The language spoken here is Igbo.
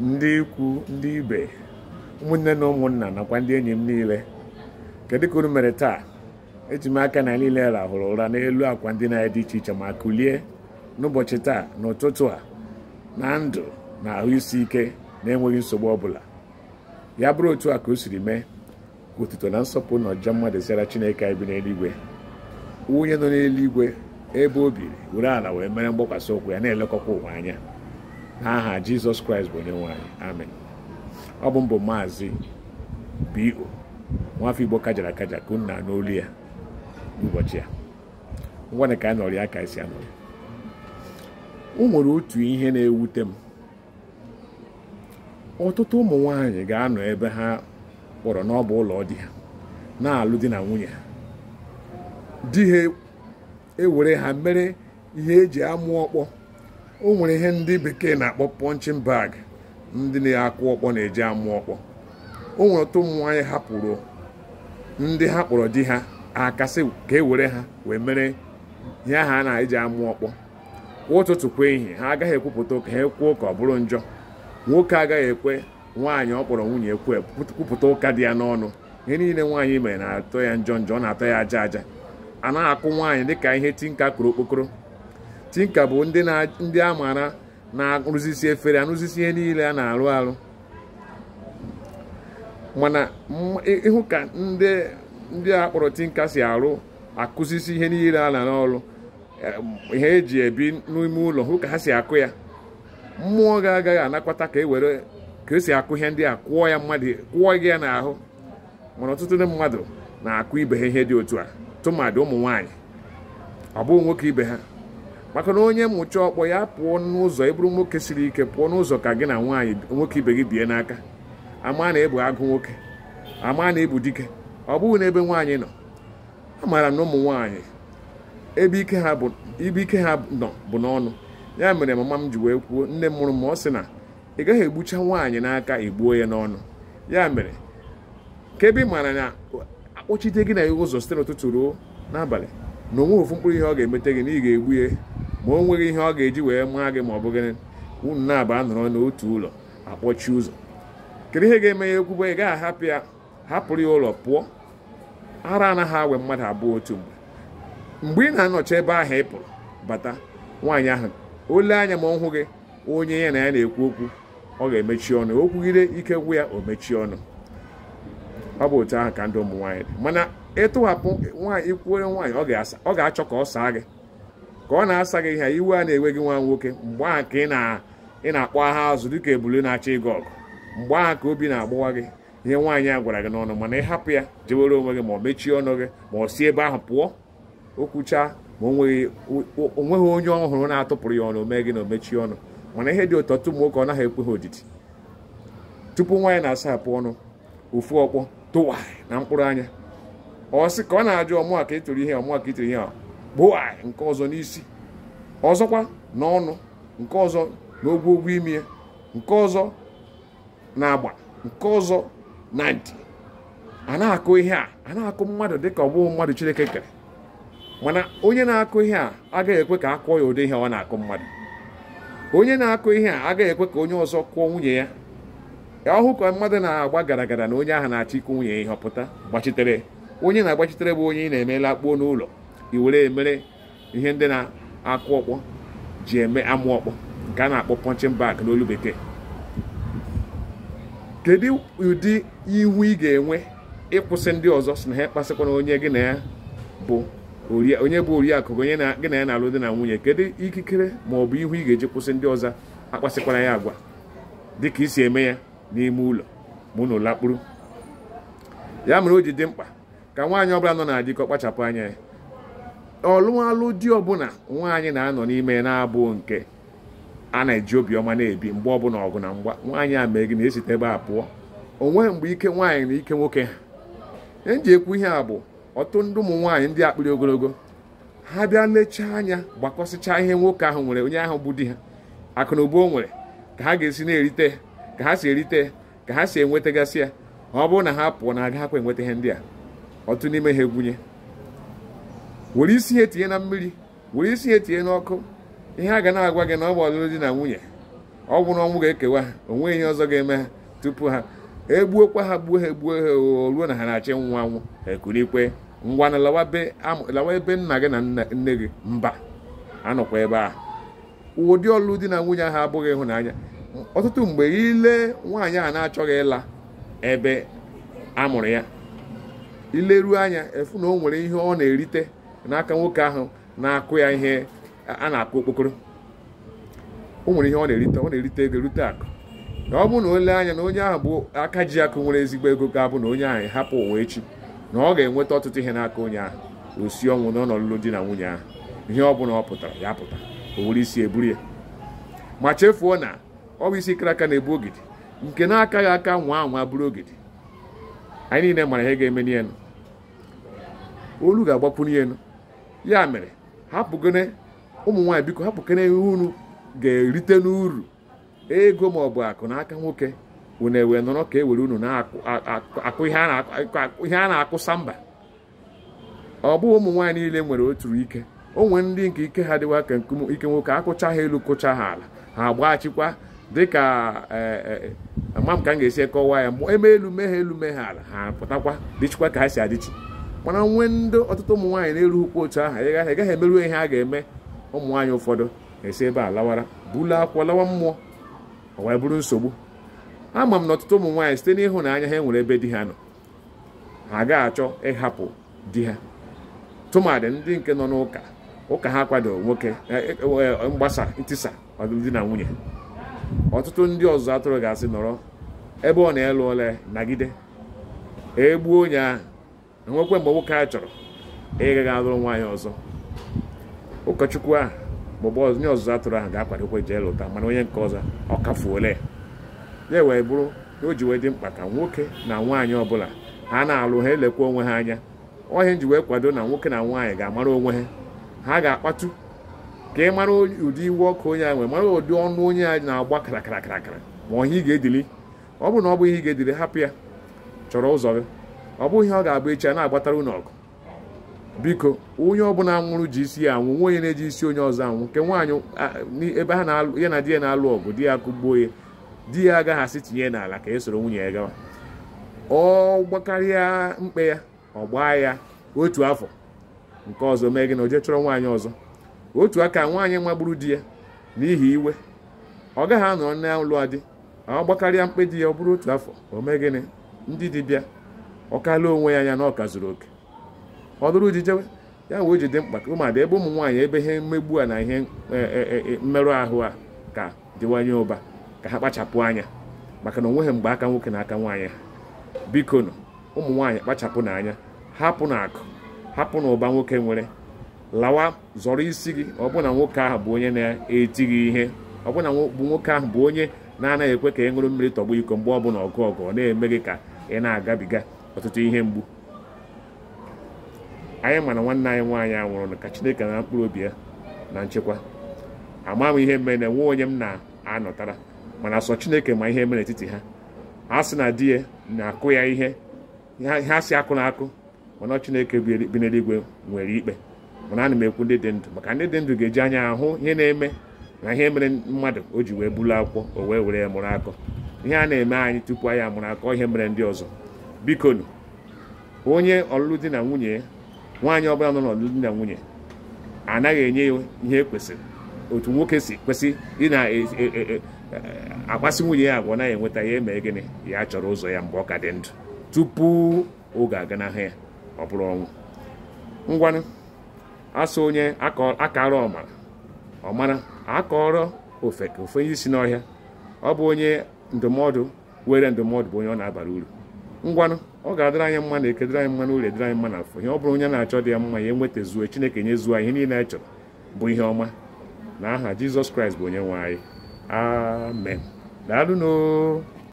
ndị ikwu ndị ibe ụmụnne na ụmụnna nakwa ndị enyi m niile kedu ka unu mere taa eji m aka na niile rahụrụ ụra n'elu akwa ndị na dị iche iche ma kulie n'ụbọchị taa n'ụtụtụ a na ndụ na ahụ isi ike na-enweghị nsogbu ọbụla ya bụrụ otu a ka o siri mee ka otuto na nsọpụ na ọjọọ mmadụ zara chineke anyị bi n'eluigwe onye nọ n'eluigwe ebe o biri were ala wee mere mgbakwasị ụkwụ ya na-elekọkwa ụwa anya n'aha jizọs kraịst bụ onye nwanyị amen ọ bụ mbụ maazị bo nwafọ igbo kajara akaja ka unu na olu ya n'ụbọchị ya ngwana ka a nọrọ ya ka esi o nwere otu ihe na-ewute m ọtụtụ ụmụ nwanyị ga-anọ ebe ha kpọrọ n'ọba ụlọ di ha na-alụ di na nwunye ha di ha ewere e ha mere ihe eji amụ ọkpọ o nwere ihe ndị bekee na-akpọ punching bag ndị na-akụ ọkpọ na-eji amụ ọkpọ o nwere otu ụmụ nwaanyị hapụrụ ndị ha kpọrọ di ha akasị ka e were ha wee mere ihe aha a na-eji amụ ọkpọ kwa ụtụtụ kwa ehihie ha agaghị ekwupụta ụka ha ekwuo ka ọ bụrụ njọ nwoke agaghị ekwe nwaanyị ọ kpọrọ nwunye ekwe kwupụta ụka dị ya n'ọnụ ihe niile nwaanyị mere na-atọ ya njọ njọ ọ na-atọ ya aja aja a naghị akụ nwaanyị dịka ihe tinka kụrụ okpokoro tinka bụ ndị a maara na-arụzisi efere arụzisi ihe niile a na-arụ arụ mana ịhụ ka ndị a kpọrọ tinka si arụ akụzisi ihe niile a na n'ọrụ ihe eji ebi n'ime ụlọ hụ ka ha si akụ ya mmụọ ga-agaghị anakwata ka e were ka esi akụ ihe ndị a kwụọ ya mmadụ kwụọ n'ahụ mana ọtụtụ ndị mmadụ na-akụ ibe ha ihe dị otu a tụmadị ụmụ nwaanyị ọ bụghị nwoke ibe ha maka na onye mmụchi ọkpọ ya pụọ n'ụzọ ịbụrụ nwoke siri ike pụọ n'ụzọ ka gị na nwaanyị nwoke ibe gị bie n'aka ama na ịbụ agụ nwoke ama na ịbụ dike ọ bụghị n'ebe nwaanyị nọ amaara na ụmụ nwaanyị ebe ike ha nọ bụ n'ọnụ ya mere mama m ji wee kwuo nne m mụrụ m ọ sị na ị gaghị egbucha nwaanyị n'aka egbuo ya n'ọnụ ya mere ka ebe ị maara na akpọchite gị na ya ụzọ site n'ụtụtụ ruo n'abalị na onwe ofu mkpụrụ ihe ọ ga-emete gị na ị ga-egbu ya ma o nweghị ihe ọ ga-eji wee maa gị ma ọ bụ gịnị unu na-aba nọrọ n'otu ụlọ akpọchi ụzọ kedu ihe ga-eme ya ekwugbo ị gaghị ahapụ ya hapụrụ ya ụlọ pụọ ara anaghị awe mmadụ abụọ otu mgbe mgbe ị na-anọchi ebe ahụ ị pụrụ bata nwaanyị ahụ ole anya ma ọ hụ gị onye ya na ya na-ekwu okwu ọ ga-emechi ọnụ o kwugide ike gwụ ya o mechie ọnụ ọ bụ otu ahụ ka ndị ụmụ nwaanyị dị mana ịtụghapụ nwaanyị ikwuere nwaanyị ọ ga-achọ ka ọ saa gị ka ọ na-asa gị ihe iwe a na enwe gị nwa nwoke mgbe ka ị na-akpọ agha azụ dịka ebule na-achọ ịgụ ọgụ mgbe ahụ ka obi na-agbawa gị ihe nwaanyị a gwara gị n'ọnụ mana ị hapụ ya jewere onwe gị ma ọ mechie ọnụ gị ma ọ si ebe ahụ pụọ okwuchaa ma o onye ọhụrụ na-atụpụrụ ya ọnụ mee gị na o mechie ọnụ mana ihe dị ụtọ tụmụ nwoke ọ naghị ekwe ha odidi tupu nwaanyị na-asapụ ọnụ ofu ọkpọ tụwa na mkpụrụ anya ọ sị ka ọ na-ajụ ọmụ a ihe ọmụ ka ịtụrụ ihe gbuo anyị nke ọzọ n'isi ọzọkwa n'ọnụ nke ọzọ n'ogwogwo imi ya nke ọzọ na agba nke ọzọ na ntị a na-akụ ihe a a na-akụ mmadụ dịka ọ bụghị mmadụ Chineke kere mana onye na-akụ ihe a agaghị ekwe ka a kụọ ya ụdị ihe ọ na-akụ mmadụ onye na-akụ ihe a agaghị ekwe ka onye ọzọ kụọ nwunye ya ọhụ ka mmadụ na-agba gara gara na onye ahụ na-achọ ịkụ nwunye ya ọ pụta gbachitere onye na-agbachitere bụ onye ị na-emela akpuo n'ụlọ iwere emere ihe ndị na-akụ ọkpọ ji eme amụ ọkpọ nke a na-akpọ pọnchin bag n'olu bekee kedu ụdị iwu ị ga-enwe ịkwụsị ndị ọzọ si na ha kpasịkwana onye gị na ya bụ onye bụ oriakụ onye gị na ya na-alụ na nwunye kedu ikikere ma ọ bụ ihu ị ga-eji kwụsị ndị ọzọ akpasịkwara ya agwa dịka isi eme ya n'ime ụlọ ma ụnụ lakpuru ya mere o ji dị mkpa ka nwaanyị ọbụla nọ na adịkọ kpachapụ anya ya ọlụmalụ di ọbụla nwaanyị na-anọ n'ime na-abụ nke a na-eji obiọma na-ebi mgbe ọbụla ọgụ na mgba nwaanyị a mee gị na-esite ebe a pụọ onwe mgbe ike nwaanyị na ike nwoke ha eji ekwu ihe a bụ ọtụ ndị ụmụ nwaanyị ndị akpịrị ogologo ha bịa lechaa anya gbakọsịchaa ihe nwoke ahụ nwere onye ahụ bụ di ha akụ na ụba o nwere ka ha ga-esi na-erite ka ha si erite ka ha si enwetagasị ya ọ bụrụ na ha pụọ na agaghakwa enweta ihe ndị a ọtụ n'ime ha egwunye were isi ya tinye na mmiri were isi ya tinye n'ọkụ ihe a ga na-agwa gị na ọ bụ ọlụlụ di na nwunye ọ bụ na ọnwụ ga-ekewa o onwe ihe ọzọ ga-eme ha tupu ha egbuokwa ha gbuo ha egbuo ha o ruo na ha na-achị nwa nwụ ekurikwe ngwa na lawa ebe nna gị na nne gị mba anọkwa ebe a ụdị ọlụlụ di na nwunye ahụ abụghị ịhụnanya ọtụtụ mgbe ile nwaanyị a na-achọghị ịla ebe amụrụ ya ileruo anya efu na o nwere ihe ọ na-erite n'aka nwoke ahụ na-akụ ya ihe a na-akụ okpokoro o nwere ihe ọ na-erite ọ na-erite ego rute akụ na ọ bụrụ na ole anya na onye ahụ bụ aka ji akụ nwere ezigbo ego ga-abụ na onye ahụ hapụ ụwa echi na ọ ga-enweta ọtụtụ ihe n'aka onye ahụ osi ọnwụ n'ọnọ lụlụ di na nwunye ahụ ihe ọ bụla ọ pụtara ya pụta o were isi eburu ya ma chefuo na ọ bụ isi kara aka na-ebu ogidi nke na-akaghị aka nwa anwa bụrụ ogidi anyị niile mara ihe ga-eme n'elu olu ga-agbakwunye elu ya mere hapụgone ụmụ nwaanyị biko hapụkene ihe unu ga-erite n'uru ego ma ọ bụ akụ n'aka nwoke unu ewee nọrọ ka e were unu na-akụ ihe a na-akụsa mba ọ bụghị ụmụ nwaanyị niile nwere otu ike onwe ndị nke ike ha dịwa ka nkume ike nwoke akụcha ha elu kụcha ha ala ha chịkwa dịka ama e, e, e, m ka m ga-esi kọwaa ya eme elu mee ha elu mee ha ala ha pụtakwa dịchikwa ka ha si adịchi mana nwee ndị ọtụtụ ụmụ nwaanyị na ukwu otu aha ị gaghị gaghị emeru ihe a ga-eme ụmụ nwaanyị ụfọdụ esi ebe a lawara bụla akwụkwọ lawa mmụọ ọ wee bụrụ nsogbu ama m na ọtụtụ ụmụ nwaanyị site n'ịhụnanya ha enwere ebe di ha nọ ha gaghị achọ ịhapụ di ha tụmadị ndị nke nọ n'ụka ụka ha kwadoro nwoke e, e, e, mgbasa ntisa ọdịdị na nwunye ọtụtụ ndị ọzụzụ atụrụ ga-asị nọrọ ebe ọ na-elu ole nagide egbuo onye ahụ nwekwe mgbe nwoke a chọrọ ga alụrụ nwaanyị ọzọ ụkọchukwu ahụ maọbụ onye ọzụzụ atụrụ ahụ ga-akwadokwe jee lụta mana onye nke ọzọ ọ kafuole ya wee bụrụ o ji wee dị mkpa ka nwoke na nwaanyị ọbụla ha na-alụ ha elekwa onwe ha anya ọhịa nji wee kwado na nwoke na nwaanyị ga-amara onwe ha ha ga-akpatu ka ị mara ụdị iwu ọkụ onye a nwere mara ụdị ọnụ onye a na-agba karakara karakara ma ọhịa ị ga-edili ọ bụrụ na ọ bụ ihe ị ga-edili hapụ ya chọrọ ụzọ gị ọ bụghị ihe ọ ga-abụ echi a na-agbatara unu ọgụ biko onye ọbụla nwụrụ ji isi ya anwụ nwa onye na-eji isi onye ọzọ anwụ nke nwaanyị ebe ha ya na di ya na-alụ ọgụ di ya kụgbuo ya di ya agaghị asị tinye n'ala ka e soro nwunye ya gawa ọ gbakarịa mkpe ya ọ gbaa ya otu afọ nke ọzọ mee gị na oje chọrọ nwaanyị ọzọ otu aka nwaanyị magburu di ya n'ihi iwe ọ gaghị anọ ụlọ adị ọ gbakarịa mkpe di ya ọ bụrụ otu afọ o mee gịnị ndị dibịa ọ kalụọ onwe ya anya na ọka zuru oke ọ dụrụ jewe ya wee ji dị mkpa ka ụmụada ebe ụmụ nwaanyị ebe ihe mmegbu a na ihe e, e, e, mmerụ ahụ a ka dịwanye ụba ka ha kpachapụ anya maka na onweghị mgbe aka nwoke na aka nwaanyị ha biko nọ ụmụ nwaanyị kpachapụ n'anya hapụ na akụ hapụ na ụba nwoke nwere lawa zọrọ isi gị ọbụna nwoke ahụ bụ onye na-eti gị ihe ọbụna bụ nwoke ahụ bụ onye na-anaghị ekwe ka ị ṅụrụ mmiri tọgbu iko mgbe bụla ọgụ ọgụ ọ na-eme gị ka ị na-agabiga ọtụtụ ihe mgbu anyị mana nwanne anyị nwaanyị anwụrụ ka Chineke na mkpụrụ obi ya na nchekwa ama m ihe mere na nwee onye m na-anọtara mana sọ Chineke ma ihe mere n'etiti ha ha sị na di ya na-akụ ya ihe ha si akụ na akụ mana Chineke bi n'eluigwe nwere ikpe mana na m ekwu ndị dị ndụ maka ndị dị ndụ ga-eji anya ahụ ihe na-eme na ihe mere mmadụ o ji wee bulu akwụkwọ o wee were ya mụrụ akọ ihe a na-eme anyị tupu anyị amụrụ akọ ihe mere ndị ọzọ bikonu onye ọlụlụ di na nwunye nwaanyị ọbụla nọ n'ọlụlụ di na nwunye anaghị enye ya ihe kwesịrị otu nwoke si kwesị ị na e, e, e, akpasi nwunye ya agwa naghị enweta ya emee gịnị ya chọrọ ụzọ ya mgbe ọ ka dị ndụ tupu oge n'ahụ ya ọ bụrụ ọnwụ ngwanụ asụ onye akara ọmara ọmara akọrọ ofe ka ofe onye si n'ọhịa ọ bụ onye ndụmọdụ were ndụmọdụ bụ onye ọ na-abara uru ngwanụ ọ ga-adịrị anyị mma na ekedịrị anyị mma na ụlọ edịrị anyị mma na afọ ihe ọ bụrụ onye na-achọ dị ya mma ya enwetazuo Chineke nyezuo ihe niile anyị chọrọ bụ ihe ọma na aha Jizọs Kraịst bụ onye nwe anyị amen daalụno